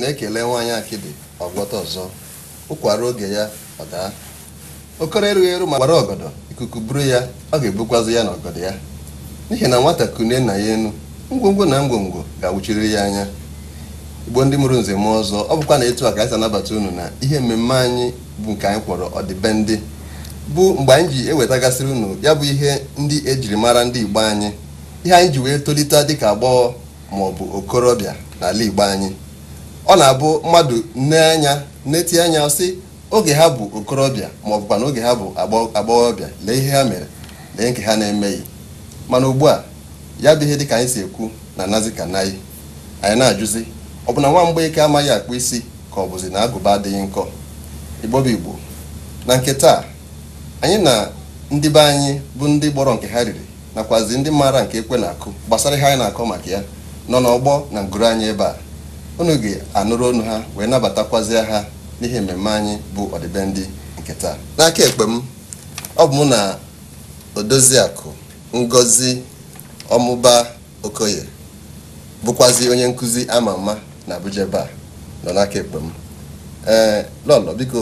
na-ekele nwaanyị akịdị ọgwọta ọzọ ụkwara oge ya ọ daa okoro erughị eru ma gbara ọgọdọ ikuku buru ya ọ ga-ebukwazi ya na ọgọdọ ya n'ihi na nwata kune na ya enu ngwongwo na ngwongwo ga-awụchiriri ya anya igbo ndị mụrụ nze mụọ ọzọ ọ bụkwa na etu a ka anyị anabata unu na ihe mmemme anyị bụ nke anyị kwọrọ ọdịbendị bụ mgbe anyị ji ewetagasịrị unu ya bụ ihe ndị ejiri mara ndị igbo anyị ihe anyị ji wee tolite dịka agbọghọ ma ọ bụ okorobịa n'ala igbo anyị ọ na-abụ mmadụ nne anya na-eti anya sị oge ha bụ okorobịa ma ọ na oge ha bụ agbọghọbịa lee ihe ha mere lee nke ha na-emeghị mana ugbu a ya bụ ihe dịka anyị si ekwu na nazi ka nayị anyị na-ajụzi ọ bụ na nwa mgbeike amaghị akpụ isi ka ọ bụzi na agụba adịghị nkọ igbobi igbo na nke taa anyị na ndị be anyị bụ ndị gbọrọ nke ha riri nakwazi ndị maara nke ekwe na-akụ gbasara ihe anyị na-akọ maka ya nọ n'ọgbọ na ngụrụ anyị ebe a unu ga-anụrụ ọnụ ha wee nabatakwazie ha n'ihe mmemme anyị bụ ọdịbendị nke taa n'aka ekpe m ọ bụ mụ na odoziakụ ngozi ọmụba okoye bụkwazi onye nkụzi ama ama na abuja ebe a nọ n'aka ekpe m ee lọlọ biko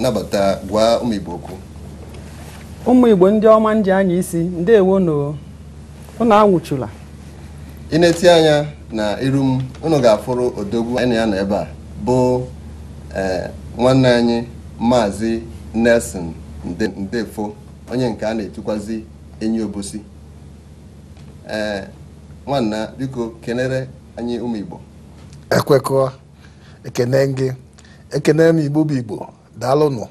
nabata gwa ụmụ igbo okwu ụmụ igbo ndị ọma nji anya isi ndewo na anwụchula ị na-eti anya na iru m unu ga-afụrụ odogwu anyị ya nọ ebe a bụ e, nwanne anyị maazị Nelson Ndefo onye nke a na-etukwazi enyi obosi ee nwanna biko kenere anyị ụmụ Igbo ekwekọ ekene gị ekene m Igbo bụ Igbo daalụnụ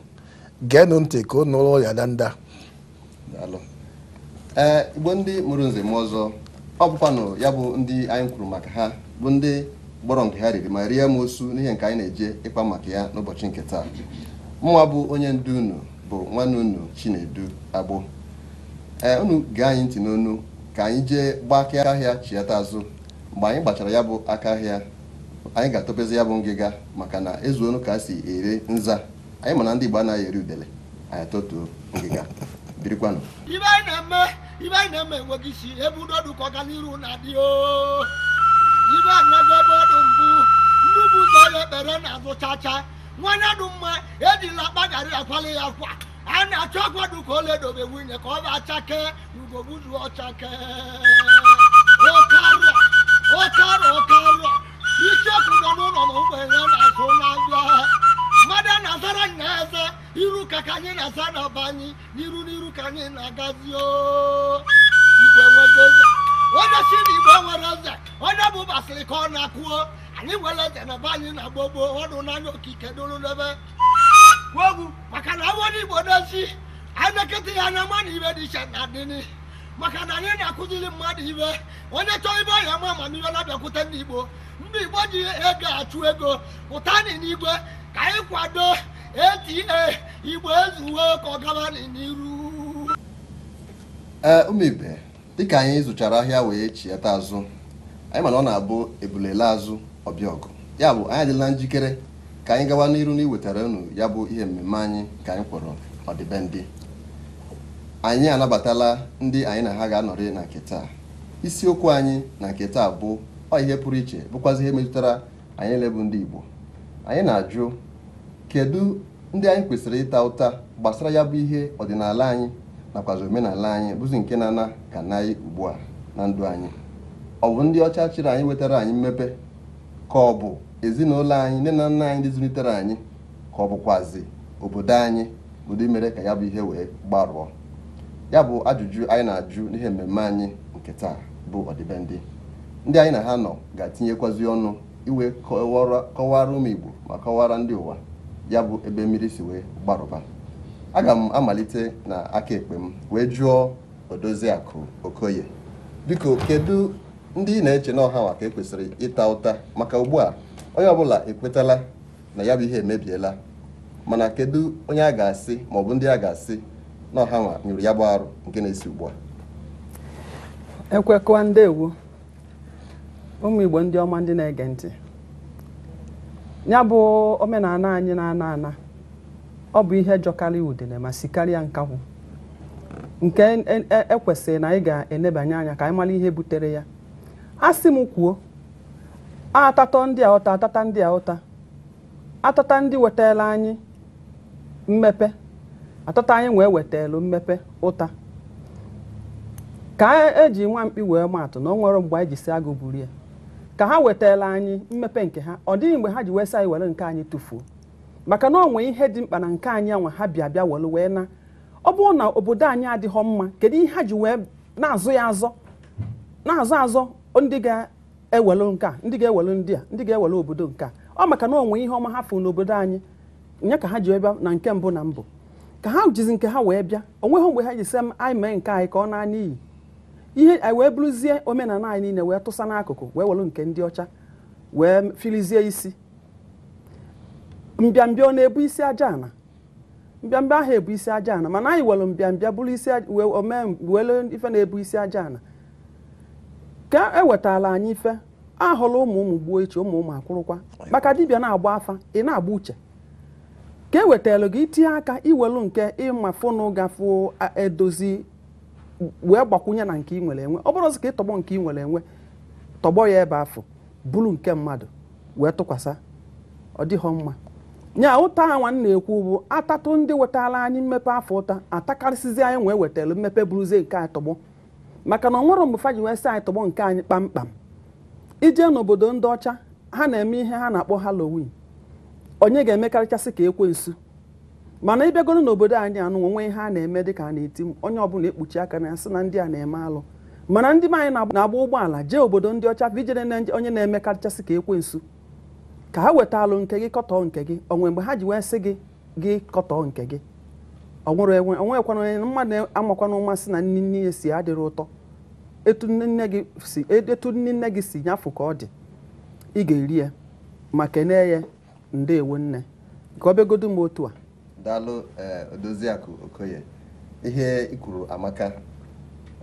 geenụ ntị ka ụnụ ụlọ ya danda ee Igbo ndị mụrụ nze ọzọ ọ bụkwanụ ya bụ ndị anyị kwuru maka ha bụ ndị gbọrọ nke ha riri ma rie m osu n'ihe nke anyị na-eje ịkpa maka ya n'ụbọchị nke taa mụnwa bụ onye ndu unu bụ nwanne unu Chinedu Agbo ee unu gee anyị ntị n'onu ka anyị jee gbaa aka ahịa chiata azụ mgbe anyị gbachara ya bụ aka ahịa anyị ga-atọpezi ya bụ ngịga maka na ezuonu ka a si ere nza anyị mana ndị Igbo anaghị eri udele anyị atọtuo ngịga birikwanụ ibe na eme enwe gị si ebe udodu ka ọganiru na-adị o ibe anago ebe ọdụ mbụ ndị bụ ụzọ ya ekpere na-azụ chacha nwanye dụ mma ejila akpaghara akwali ya kwa a na-achọ ọkwado ka o ledobe nwunye ka ọ ba achake na ugogbuzu ọchake ọkara ọkara ọkara n'iru ka ka anyị na-asa n'ọba anyị n'iru n'iru ka anyị na-agazi igwe nwegozi onye si na igbo nwere eze onye bụ basịrị ka ọ na-akụo anyị nwere eze na be anyị na-agba gboo ọnụ n'anya okike dụrụ n'ebe ogwu maka na awọna igbo n'ezi anekịta ya na mmanụ ibe dị iche na adịnị maka na anyị na-akụziri mmadụ ibe onye chọọ ibe ọhịa ma amamihe na-abịakwute ndị igbo ndị igbo ji ego achụ ego pụta n'igwe ka anyị kwado ata igbo ezuwe ka ọ n'iru ee ụmụibe dịka anyị zụchara ahịa wee chiata azụ anyị mana ọ na-abụ ebulela azụ ọbịa ọgụ ya bụ anyị adịla njikere ka anyị gawa n'iru na iwetara unu ya bụ ihe mmemme anyị ka anyị kpọrọ ọdịbendị anyị anabatala ndị anyị na ha ga-anọrị na nketa taa isiokwu anyị na nketa taa bụ ọ ihe pụrụ iche bụkwazi ihe metụtara anyị lebụ ndị igbo anyị na-ajụ kedu ndị anyị kwesịrị ịta ụta gbasara ya bụ ihe ọdịnala anyị nakwazi omenala anyị bụzi nke na-ana ka naghị ugbu a na ndụ anyị ọ bụ ndị ọcha chịrị anyị wetara anyị mmepe ka ọ bụ ezinụlọ anyị nne na nna anyị ndị zụlitere anyị ka ọ bụkwazi obodo anyị bụdị mere ka ya bụ ihe wee gbarụọ ya bụ ajụjụ anyị na-ajụ n'ihe mmemme anyị nke taa bụ ọdịbendị ndị anyị na ha nọ ga-atinyekwazi ọnụ iwe kọwara ụmụ Igbo ma kọwara ndị ụwa ya bụ ebe mmiri si wee gbarụba aga m amalite na aka ekpe m wee jụọ Odoziakụ Okoye biko kedu ndị ị na-eche n'ọha ka ekwesịrị ịta ụta maka ugbu a onye ọbụla ekwetala na ya bụ ihe emebiela mana kedu onye a ga-asị bụ ndị a ga-asị na ọha nwa nyụrụ ya bụ arụ nke na-esi ugbu a ndị ụmụ Igbo ndị ọma ndị na-ege ntị ya bụ omenala anyị na-ana ana ọ bụ ihe jọkarị udele ma si karịa nkakwụ nke ekwesịrị e, e, e, na anyị ga-enebanye anya ka anyị mara ihe butere ya a sị m kwuo atatọ ndị a ụta atata ndị a ụta atata ndị wetara anyị mmepe atata anyị wee wetelu mmepe ụta ka eji nwa mkpi wee maatụ na o nwere mgbe anyị ji si agụ ya ka ha wetala anyị mmepe nke ha ọ dịghị mgbe ha ji wesa anyị were nke anyị tụfuo maka na onwe nwee ihe dị mkpa na nke anyị anwa ha bịa bịa were wee na ọ bụrụ na obodo anyị adịghọ mma kedu ihe ha ji wee na-azụ ya azọ na-azọ azọ ndị ga-ewelu nke a ndị ga ewele ndị a ndị ga ewele obodo nke a ọ maka na onwe ihe ọma ha fụ n'obodo anyị nya ka ha ji bịa na nke mbụ na mbụ ka ha jizi nke ha wee bịa onweghị mgbe ha ji sị anyị mee nke anyị ka ọ naa n'iyi ihe anyị e, wee bụrụzie omenala anyị niile wee tụsa n'akụkụ wee welụ nke ndị ọcha wee filizie isi mbịambịa ọ na-ebu isi aja ana mbịambịa ahụ ebu isi aja ana mana anyị welu mbịambịa bụrụ isi welu ife na-ebu isi aja ana ka ewetala anyị ife ahụla ụmụ ụmụ gbuo iche ụmụ ụmụ akwụrụkwa maka dibịa na-agba afa ị na-agba uche ka e wetara gị itinye aka iwelu nke ịma ịmafụnụ gafụ edozi wee gbakwunye na nke i nwere enwe ọ bụrụzi ka ị tọgbọ nke ị nwere enwe tọgbọ ya ebe afọ bụrụ nke mmadụ wee tụkwasị ọ dịghọ mma nya ụta awa m na-ekwu bụ atatụ ndị wetara anyị mmepe afọ ụta atakarịsịzi anyị wee wetara mmepe bụrụzie nke anyị tọgbọ maka na ọ nwere mgbe fa ji wee sị anyị tọgbọ nke anyị kpamkpam ije n'obodo ndị ọcha ha na-eme ihe ha na-akpọ halloween onye ga-emekarịchasị ka ekwe nsu mana ịbịagoro n'obodo anyị anụnwa onwe ihe a na-eme dịka a na-eti onye ọbụla ekpuchi aka na sị na ndị a na-eme alụ mana ndị be anyị na-agba ụgbọala jee obodo ndị ọcha vijere na onye na-eme kachasị ka ekwensu ka ha weta alụ nke gị kọtọ nke gị onwe mgbe ha ji wee sị gị gị kọtọọ nke gị ọnwụrụ enwe onwekwana onye mmadụ amakwana mmasị na nne nne ya si adịrị ụtọ etu nne nne gị si nyafụ ka ọ dị ị ga-eri ya ma kenee ya ndeewo nne ka ọ bịagodo m otu a daalụ eh, Odoziakụ Okoye ihe ikwuru amaka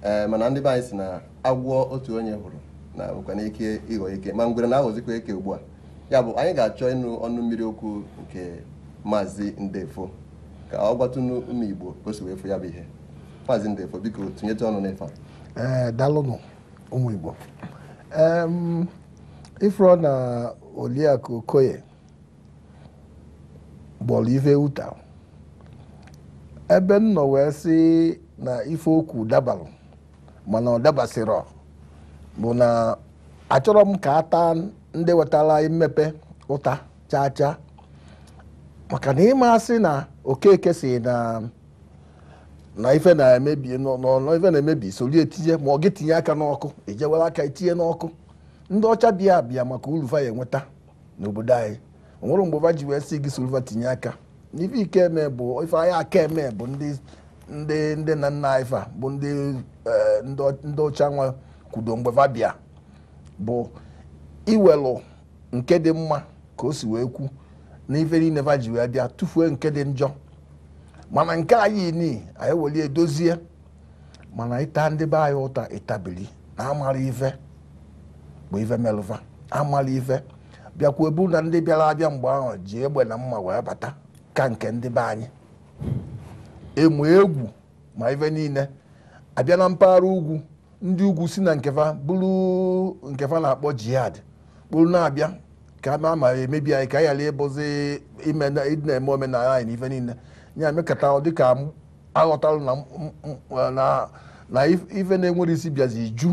eh, mana ndị be anyị si na agwọ otu onye hụrụ na nwekwana ike ịghọ ike ma ngwere na-aghọzikwa eke ugbu a ya bụ anyị ga-achọ ịnụ ọnụ mmiri okwu nke maazị Ndefo ka ọ gbatụnụ ụmụ Igbo o efu ya bụ ihe maazị Ndefo biko tụnyete ọnụ n'ife a eh, ụmụ Igbo na Okoye gbọrọ ebe m nọ wee sị na ife okwu dabalụ mana ọ dabasịrọ bụ na achọrọ m ka ata ndị wetara mmepe ụta chaa chaa maka na ịmasị si na okeke si na na ife na-emebi n'ọnụ ife na-emebi soli etinye ma ọ gị tinye aka n'ọkụ ejewela aka etinye n'ọkụ ndị ọcha bịa abịa maka uruva ya enweta n'obodo anyị onwere mgbe va ji wee si gị tinye aka ife ike eme bụ ife anyị aka eme bụ ndị ndị ndị na nna anyị bụ ndị e, ndị ọcha nwa kwudo mgbe bụ iwelu nke dị mma ka o si wee kwu na ife niile vaji ji wee bịa tụfuo nke dị njọ mana nke anyị ni anyị weli edozie mana ịta ndị be anyị ụta ịtabili na amara ife bụ ife melụva amala ife bịakwa ebu na ndị bịara abịa mgbe ahụ ji egbe na mma wee bata ka nke ndị be anyị emu egwu ma ife niile abịa na mpaghara ugwu ndị ugwu si na nkefa bụrụ nkefa na-akpọ jihad kpụrụ na-abịa ka ama ma emebi anyị ka a ghara ịbụzi na-eme omenala anyị na ife niile ya mekata dịka aghọtalụ na ife na-enwere isi bịazi ju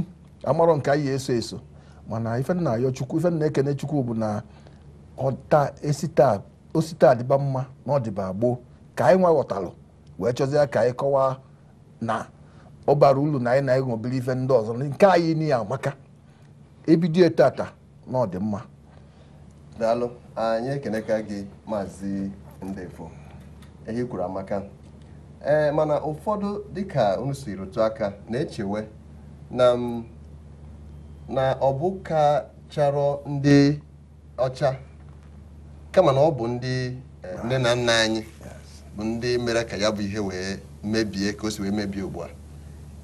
amarọ nke anyị eso eso mana ife na-ayọ chukwu ife na-ekene chukwu bụ na ọta esi taa osite adịba mma na ọdịba gboo ka anyị nwa ghọtalụ wee chọzie ka anyị kọwaa na ọ bara na anyị na anyị ṅụbiri ife ndị ọzọ nke anyị niile amaka ebido taata na ọdịmma daalụ anyị ekeneka gị maazị Ndefo ehi kwuru amaka ee mana ụfọdụ dịka unu si rụtụ aka na-echewe na ọ bụ ka chọrọ ndị ọcha kama na ọ bụ ndị eh, nne na nna anyị bụ ndị mere ka ya bụ ihe wee mebie ka o si wee mebie ugbu a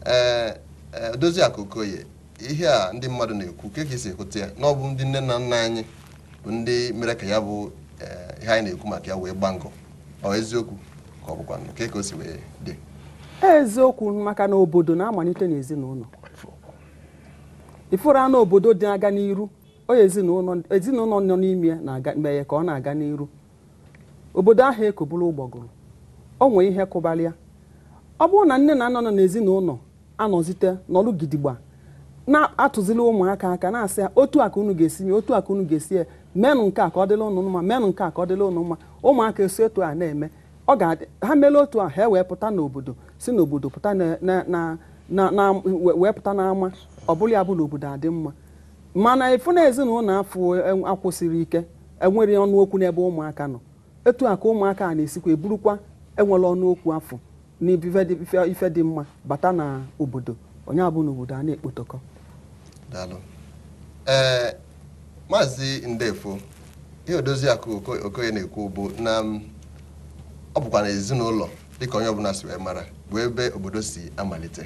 ee eh, eh, Doziakụ Okoye ihe a ndị mmadụ na-ekwu ka esi e ekwute ya na ọ bụ ndị nne na nna anyị bụ ndị mere ka ya bụ ihe anyị na-ekwu maka ya wee gbangọ ọ eziokwu ka ọ bụkwa nke ka o si wee dị e, eziokwu maka na obodo na-amalite n'ezinụlọ ịfụrụ anụ obodo dị aga n'iru onye ezinụlọ nọ n'ime ya na-aga mee ka ọ na-aga n'iru obodo ahụ ekoburu ụgbọgụrụ o nwee ihe kụbalịa ọ bụrụ na nne na nna nọ n'ezinụlọ anọzite n'ọrụ gidigba na atụzila ụmụaka aka na-asị ya otu aka unu ga-esi mee otu aka unu ga-esi ya menụ nke a ka ọ dịla unu mma menụ nke a ka ọ dịla unu mma ụmụaka esi otu a na-eme ọ ga-adị ha meela otu a ha ewee pụta n'obodo si n'obodo pụta wee pụta n'ama ọ bụla ya bụ na obodo adị mma mana efu na ezinụlọ afọ e, akwụsịrị ike enwere ọnụ okwu n'ebe ụmụaka nọ etu a ka ụmụaka a na-esikwa eburukwa enwere ọnụ ọnụokwu afọ n'ife dị mma bata na obodo onye abụ n'obodo a na-ekpotokọ ee maazị ndefo ihe Odoziakụ Okoye na-ekwu bụ na ọ bụkwa na ezinụlọ dịka onye ọbụla si wee mara bụ ebe obodo si amalite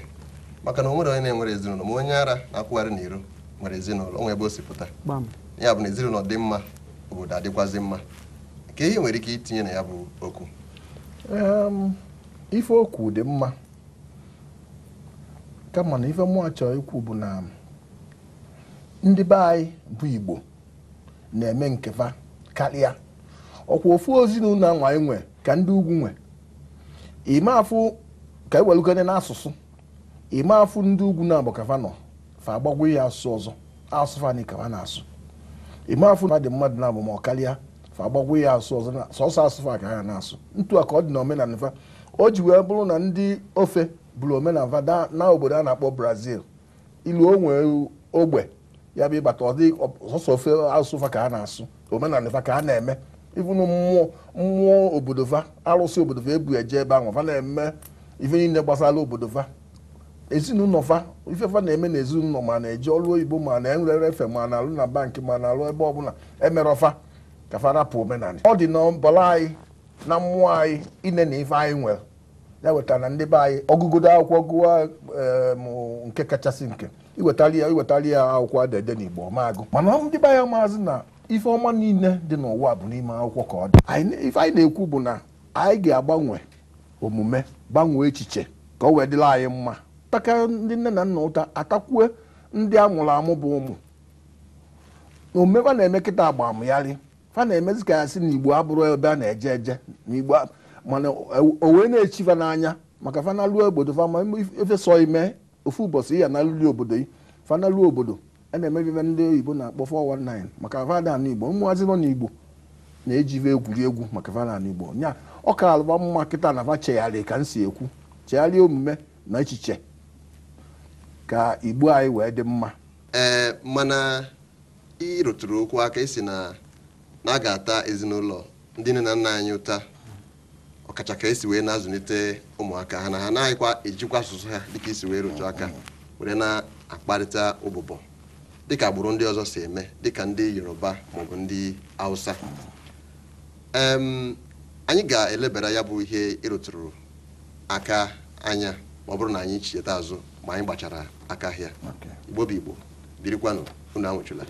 maka na o nwere onye na-enwere ezinụlọ ma onye ara na-akwụgharị n'iro nwere ezinụlọ onwe ebe o si pụta ya bụ na ezinụlọ dị mma obodo adịkwazi mma ka ihe nwere ike itinye na ya bụ okwu ife okwu dị mma kama na ife mụọ achọ ikwu bụ na ndị be anyị bụ igbo na-eme nkefa karịa ọkwa ofu ezinụlọ nwa anyị nwe ka ndị ugwu nwe ime afụ ka ewelugone n'asụsụ ime afụ ndị ugwu na-abụ kafa nọ fa ya asụsụ ọzọ asụsụ fa n'ike na-asụ ime afọ na dị mmadụ na ma ọ karịa fa agbagwo ya asụsụ ọzọ sọsọ asụsụ fa ka ha na-asụ ntu a ka ọ dị na omenala fa o ji wee bụrụ na ndị ofe bụrụ omenala na obodo a na-akpọ brazil ilu onwe ogbe ya bụ ịbata ọdị sọsọ ofe asụsụ fa ka ha na-asụ omenala fa ka ha na-eme ifunu mmụọ mmụọ obodo fa arụsị obodo fa ebu eje ebe ahụ fa na-eme ife niile gbasara obodo fa ezinụlọ fa ifefa na-eme n'ezinụlọ ezinụlọ ma na-eji ọrụ oyibo ma na-enwere efe ma na-alụ na bankị ma na-alụ ebe ọbụla emere ọfa ka fa omenala ọ dị na mbọla anyị na mmụọ anyị ine na ife anyị nwere ya wetara na ndị be anyị ọgụgodo akwụkwọ gụwa nke kachasị nke iwetali ya iwetali ya akwụkwọ adede n'Igbo ọmagụ mana ndị be anyị maazị na ife ọma niile dị n'ụwa bụ n'ime akwụkwọ ka ọ dị ife anyị na-ekwu bụ na anyị ga-agbanwe omume gbanwee echiche ka o wee dịla anyị mma takarị ndị nne na nna ụta atakwue ndị a mụrụ amụ bụ ụmụ na omekwa na-eme kịta agba amụgharị fa na-emezi ka ya si na igbo abụrụ ebe a na-eje eje na mana o na-echi fa n'anya maka fanaluo obodo fama efesọ ime ofu ụbọchị ya na alụli obodo fanalụ obodo a na-emebibe ndị oyibo na-akpọ 419 maka vanana igbo ụmụazị nọ n'igbo na-ejive egwu maka vanana igbo nya ọ ka alụba mma kịta na va chegharị ka m si ekwu chegharịa omume na echiche ka igbo anyị wee dị mma ee mana ị okwu aka isi na na a ga-ata ezinụlọ ndị nne na nna anyị ụta ọkacha ka esi wee na-azụlite ụmụaka ha na ha anaghịkwa ejikwa asụsụ ha dịka isi wee rụtụ aka were na-akparịta ụbụbọ dịka agbụrụ ndị ọzọ si eme dịka ndị yoruba maọbụ ndị hausa anyị ga-elebara ya bụ ihe ịrụtụrụ aka anya ma ọ bụrụ na anyị cheta azụ ma anyị gbachara aka ahịa igbo bụ igbo birikwanụ unu anwụchụla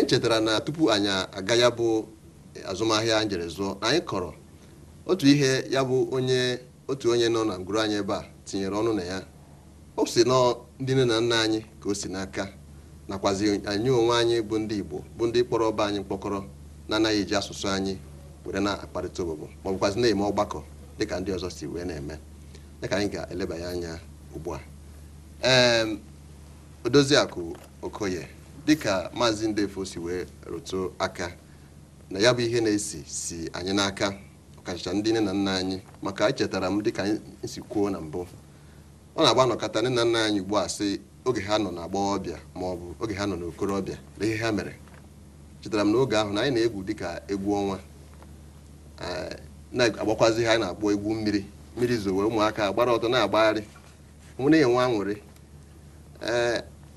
anyị chetara na tupu anyị aga ya bụ azụmahịa anyị jere zụọ na anyị kọrọ otu ihe ya bụ onye otu onye nọ na ngwuru anyị ebe a tinyere ọnụ na ya o si nọ ndị nne na nna anyị ka o si n'aka nakwazi anyị onwe anyị bụ ndị Igbo bụ ndị kpọrọ ọba anyị mkpọkọrọ na-anaghị eji asụsụ anyị were na-akparịta obobo ma ọ na-eme ọgbakọ dịka ndị ọzọ si wee na-eme dịka anyị ga-elebanye anya ugbu a ee Odoziakụ Okoye dịka maazị Ndefo si wee rụtụ aka na ya bụ ihe na-esi si anyị n'aka ọkachacha ndị nne na nna anyị maka echetara m dịka anyị si kwuo na mbụ ọ na-agba nọkọta nne na nna anyị ugbu a sị oge ha nọ na ọbịa ma ọ bụ oge ha nọ n'okorobịa na ihe ha mere chetara m n'oge ahụ na anyị na-egwu dịka egwu ọnwa na-agbakwazi ha na-akpọ egwu mmiri mmiri zowe ụmụaka agbara ọtọ na-agbagharị nwere nwa aṅụrị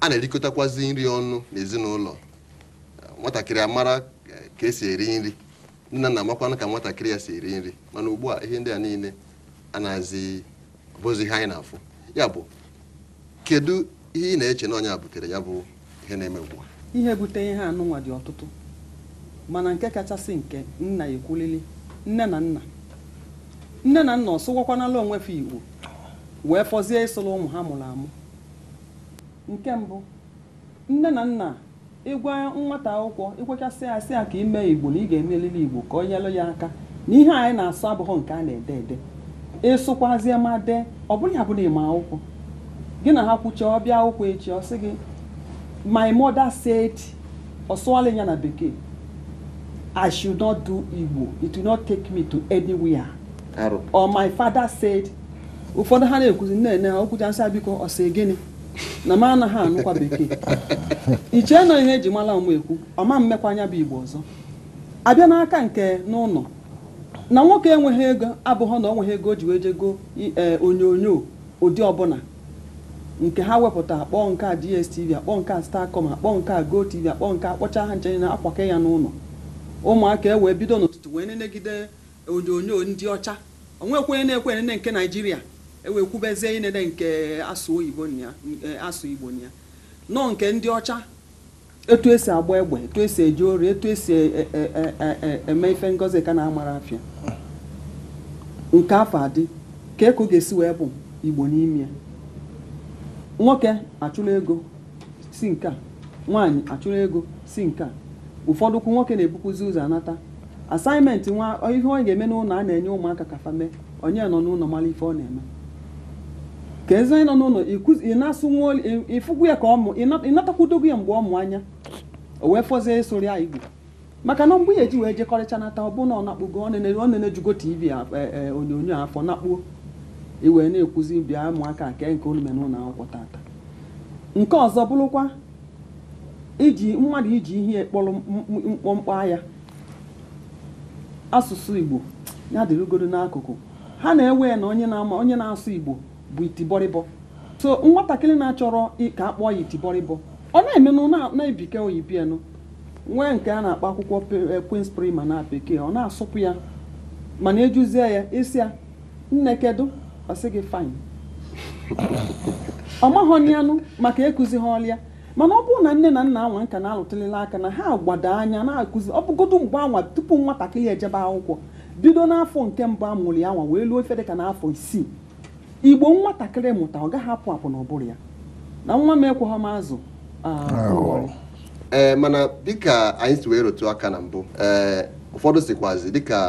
a na-erikọtakwazi nri ọnụ n'ezinụlọ nwatakịrị amara eh, ka esi eri nri nne na nna amakwanụ ka nwatakịrị ya si eri nri mana ugbu a ihe ndị a niile a bụzi ihe anyị na-afụ ya bụ kedu ihe ị na-eche na ọnya butere ya bụ ihe na-eme ugbu a ihe butere ihe anụnwa dị ọtụtụ mana nke kachasị nke nna ekwulili nne na nna nne na nna ọsụwakwanala onwe igbo wee fọzie ịsụlụ ụmụ ha mụrụ amụ nke mbụ nne na nna ịgwa nwata akwụkwọ ịgwachasị asị a ka ime igbo na ị ga-emelili igbo ka ọ nyelụ ya aka na ihe anyị na-asụ abụghị nke a na-ede ede ịsụkwazie ma dee ọ bụghị abụ na ịma akwụkwọ gị na ha kwucha ọbịa akwụkwọ echi ọ sị gị my mother said ọ sụọla ya na bekee I should not do igbo it will not take me to anywhere or my father said ụfọdụ ha na-ekwuzi nne nne ha okwucha biko ọ sị gịnị na m anaghị anụkwa bekee iche na ihe eji mara m ekwu ọma mmekwa anya bụ igbo ọzọ abịa n'aka nke n'ụlọ na nwoke enweghị ego abụghị na onweghị ego ji wee jego e, onyonyo ụdị ọbụla nke ha wepụta akpọ nke a dstv akpọ nke a starcom akpọ nke a gotv akpọ nke a kpọcha ha nchenye na akwake ya n'ụlọ ụmụaka e wee bido n'ụtụtụ wee nenegide onyonyo ndị ọcha onwekwenye na-ekwenene nke naijiria ewekwubezie inede nke asụ oyibo ya e, asụ igbo ya nọ nke ndị ọcha etu esi agba egbe etu esi eji ori etu esi e, e, eme ife ngozi ka na-amara afịa nke afọ adị ka eko ga-esi wee bụ igbo n'ime nwoke achụla ego si nke a nwaanyị achụla ego si nke a ụfọdụ nwoke na-ebukwuzi ụzọ anata asaịmentị nwa ihe onye ga-eme n'ụlọ a na-enye ụmụaka ka fa mee onye nọ n'ụlọ mara ife ọ na-eme ka eze anyị nọ n'ụlọ ị na-asụ nwa olu ịfụgwu ya ka ọ mụ ị natakwudogo ya mgbe ọ mụ anya o wee fọzie ịsụrụ ya igbo eh, eh, maka na mgbe ya eji wee nata ọ bụ na ọ nakpụgo ọ na-enejugo tv onyonyo afọ nakpuo iwee na-ekwuzi bịa ụmụaka nke nke na ụlọ akwụkwọ tata nke ọzọ bụrụkwa iji mmadụ iji ihe kpọrọ mkpọmkpọ agha asụsụ igbo ya dịrugoro n'akụkụ ha na-ewe na onye na onye na-asụ igbo bụ itibọrịbọ so nwatakịrị na-achọrọ ka akpọ ya itibọrịbọ ọ na-emenụ na-ebike oyibienụ nwee nke a na-akpọ akwụkwọ eh, Queen's prima na bekee ọ na-asụpụ ya mana ejuzie ya isi ya nne kedu ọ gị fine ọ maghọ anụ maka ekụzi ha ọlịa mana ọ bụrụ na nne na nna anwa nka na-alụtụlịla aka na ha gbado anya na-akụzi ọ bụgodo mgbe anwa tupu nwatakịrị ejebe akwụkwọ bido n'afọ nke mbụ amụrụ ya anwa wee luo ife dịka n'afọ isii igbo nwatakịrị mụta ọ gaghị apụ apụ n'ụbụrụ ya na nwa m ekweghị m azụ ah, ee eh, mana dịka anyị si wee rotu aka na mbụ ee eh, ụfọdụ sikwazi dịka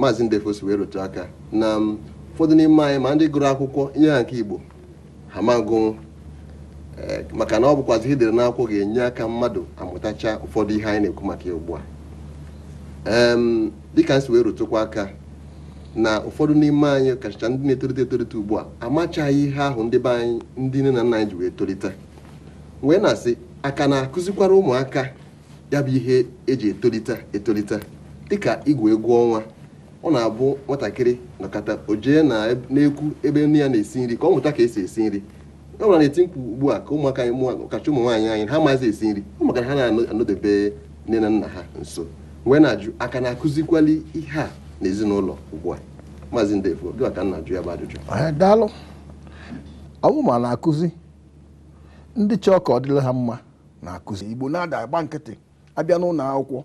maazị ndefo si wee rotu aka na mm, ụfọdụ n'ime anyị ma ndị gụrụ akwụkwọ nye ha nke igbo ha magụnwụ eh, maka na ọ bụkwazi idere n'akwụkwọ ga-enye aka mmadụ amụtacha ụfọdụ ihe anyị na-ekwu maka ya ugbu a dịka anyị si wee rotụkwa aka na ụfọdụ n'ime anyị kacha ndị na-etolite etolite ugbu a amachaghị ihe ahụ ndị be anyị ndị nne na nna anyị ji wee tolite wee na-asị aka na-akụzikwara ụmụaka ya bụ ihe eji etolite etolite dịka igwe egwu ọnwa ọ na-abụ nwatakịrị na ojee na na ekwu ebe nne ya na-esi nri ka ọ mụta ka esi esi nri ọ bụra na-eti mkpu ugbu a ka ụmụaka anyị kacha ụmụ nwaanyị anyị ha maazị esi nri ọ maka ha na-anọdebe nne na nna ha nso wee na-ajụ aka na-akụzikwali ihe a n'ezinụlọ ugbu a maazị Ndefo gị ka nna jụ ya bụ ajụjụ daalụ ọwụ ma na-akụzi ndị chọọ ka ọ dịla ha mma na-akụzi Igbo na-ada agba nkịtị abịa n'ụlọ akwụkwọ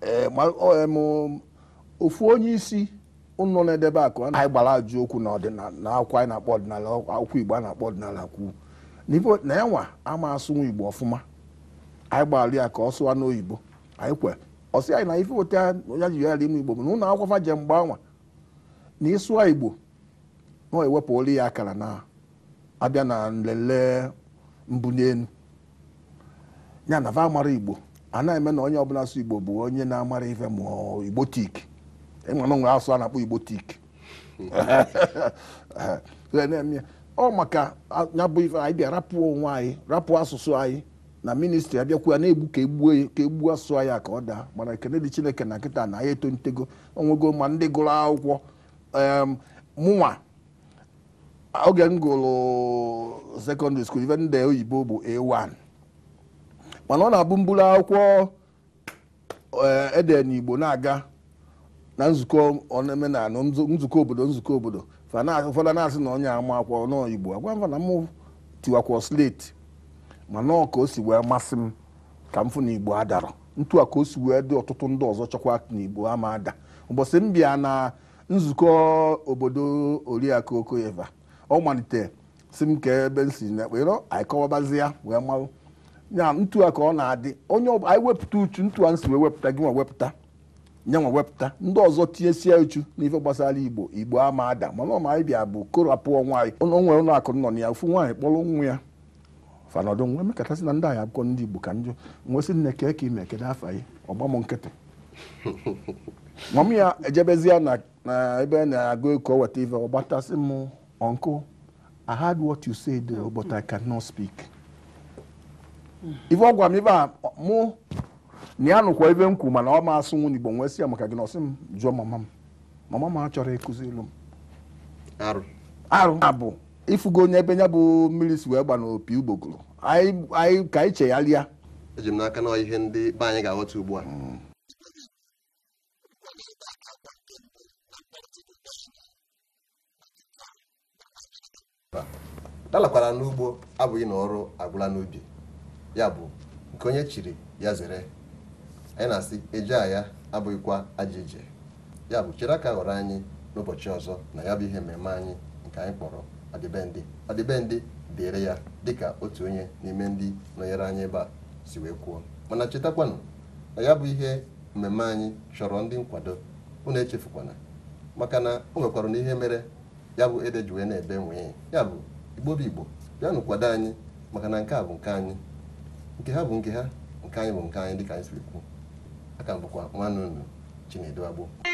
eh, eh, ofu onye isi ụnụ na-edebe akụ anyị gbara ajụ okwu na akwụkwọ anyị na-akpọ ọdịnala akwụkwọ Igbo a na-akpọ ọdịnala kwu na ya ama asụnwa Igbo ọfụma anyị gbara ya ka ọ sụwa n'oyibo anyị kwe ọsị anyị na ife weta ya ji ya ime igbo bụ na ụlọ akwụkwọ je mgbe anwa na ịsụọ igbo na ewepụ olu ya akara na abịa na nlele mbụ n'elu ya na va amara igbo a na-eme na onye ọbụla asụ igbo bụ onye na-amara ife ma igbo tik ịmana e nwere asụ a na-akpọ igbo tik ọ maka ya bụ ife anyị bịa rapụ onwe anyị rapụ asụsụ anyị na ministri abịakwuya na-egbu ka egbuo ka egbuo asụ ya ka ọ daa mana ekene dị chineke na nkịta na ya etolitego onwego ma ndị gụrụ akwụkwọ mụnwa oge m gụrụ sekọndịrị skuul ife ndị oyibo bụ a1 mana ọ na-abụ mburu akwụkwọ eh, ede n'igbo na-aga na nzukọ omenala nzukọ obodo nzukọ obodo ụfọdụ na-asị na onye ama akwụkwọ n'igbo agwa mfa na mụ tiwakwa sleti mana ọ ka o si wee masị m ka m fụ na igbo adara ntu a ka o si wee dị ọtụtụ ndị ọzọ chọkwa na igbo ama ada ụbọchị m bịa na nzukọ obodo oriakụ okoyeva ọ malite si m ka ebe m si nekpero anyị wee malụ ya ntu a ka ọ na-adị onye anyị wepụta uchu ntu a m si wee wepụta gị nwa wepụta nye nwa wepụta ndị ọzọ tinyesie uchu n'ife gbasara igbo igbo ama ada mana ọma anyị bịa bụ korapụ nwaanyị onwe ụlọ akụ nọ na ya ofu nwaanyị kpọrọ nwa ya fanọdụ nwe mekọtasị e na ndị anyị akwụkwọ ndị igbo ka njọ nwesị nne kee ka ime kedu afa anyị ọgbam nkịtị nwam ya ejebezie na ebe na-agụ ka weta ife ọ gbatasị m ọnkụ I heard what you say there eh, but I cannot speak. ife ọ gwa m ibe a mụ na ya nụkwa ebe m kwu mana ọ ma asụ nwunye igbo nwee si ya maka gị na ọsị m jụọ mama m mama m achọrọ ịkụziri m arụ abụ ifugo onye ebe ya bụ mmiri si wee gba n'opi ugbogoro anyị ka anyị chegharịa eji m n'aka na ihe ndị be anyị ga-aghọta ugbu a dalakwara n'ugbo abụghị na ọrụ agwụla n'ubi ya bụ nke onye chiri ya zere anyị na-asị eje ya abụghịkwa ajọ ije ya bụ chere aka ghọrọ anyị n'ụbọchị ọzọ na ya bụ ihe mmemme anyị nke anyị kpọrọ adịbendị adịbendị dịrị ya dịka otu onye n'ime ndị nọnyere anyị ebe a si wee kwuo mana chetakwanụ na ya bụ ihe mmemme anyị chọrọ ndị nkwado unu echefukwana maka na o nwekwara na ihe mere ya bụ ede ji na-ebe nwee ya bụ bụ igbo bịanụ kwado anyị maka na nke a bụ nke anyị nke ha bụ nke ha nke anyị bụ nke anyị dịka anyị siri kwu aka m bụkwa nwanne unu Chinedu Agbo